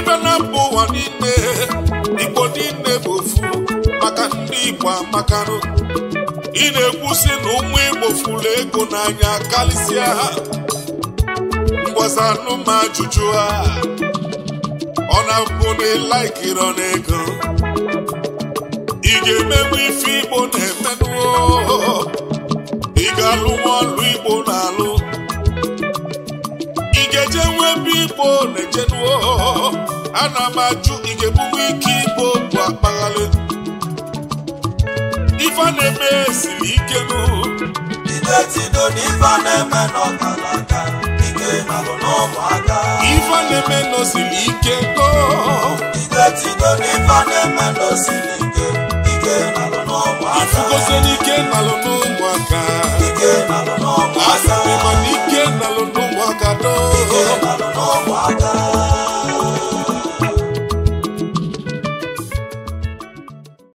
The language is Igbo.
ibe na ụwa niile igbo niile bụ ofu maka ndị igbo amakanụ ị na-ekwusi na ụmụ igbo furu ego n'anya karịsịa ha mgbazanụ ma ajụjụ ha ọ na-abụ na ịlaikirọ na ego ị ga-emenwu ife igbo na-emenụ ị ga-alụ nwa ọlụ igbo na-alụ eje nwe ebe igbo na-ejenuo ana m ajụ igebube ike igbo bụ akpaghalị ife na-eme siri ike nụ n'ife na-eme ike nalụ n'ụmụaka ife na-eme siri ike nọ ide na-eme ike ike nalụ n'ụmụaka